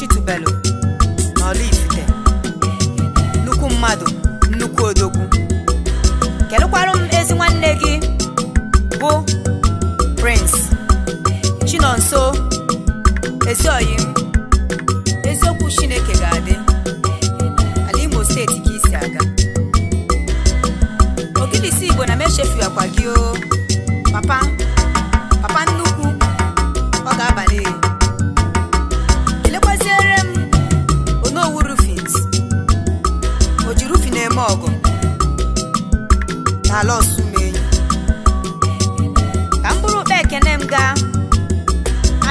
achịtụbelu n'Ọlifite nnukwu mmadụ nnukwu odogwu kedụkwarụ m ezi nwanne gị bụ Prince Chinonso Ezioyi eziokwu Chineke ga-adị ala Imo steeti ka isi aga ogidisi Igbo na m akwa gị o papa n'ala Osumenyi ka mkpụrụ ụkpa ekene m gaa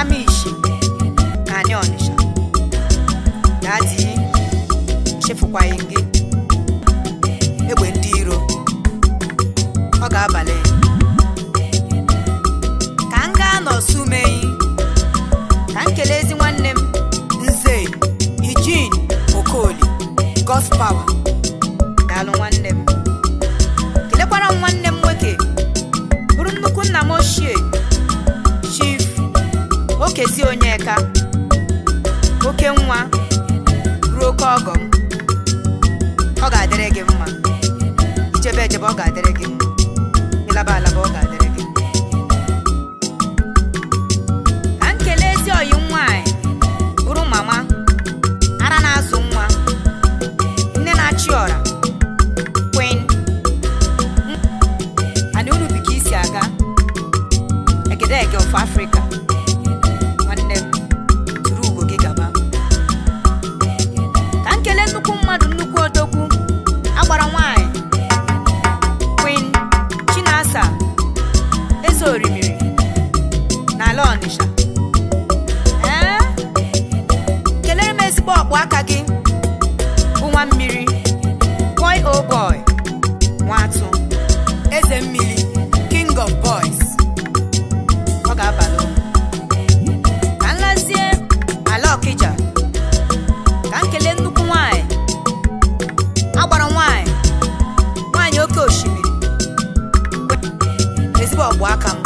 Amishi na anyị Ọnịsha na adị chefukwaghị gị egbe ndị iro ọ ga-abalị ka m gaa n'Osumenyi ka m kelee ezi nwanne m Nze Eugene Okoli gospawa ọcha oke nwa ruo oke ọgọ m ọ ga-adịrị gị mma ichebe echebe ọ ga-adịrị gị mma ịlaba alaba ọ ga-adịrị gị ka nkele ezi oyi nwanyị bụrụ mama ara na-azụ nwa nne na-achị ọra kwen na unu isi aga egedege of Afrịka orimiri n'ala Ọnịsha eh? kelere m ezigbo ọkpụ aka gị bụ nwa mmiri boy o oh boy nwa eze mmiri king of boys ọ ga-abalị ka nlazie ala Ọkịja ka m nnukwu nwanyị agbara nwanyị nwanyị oke osimiri ezigbo ọkpụ aka m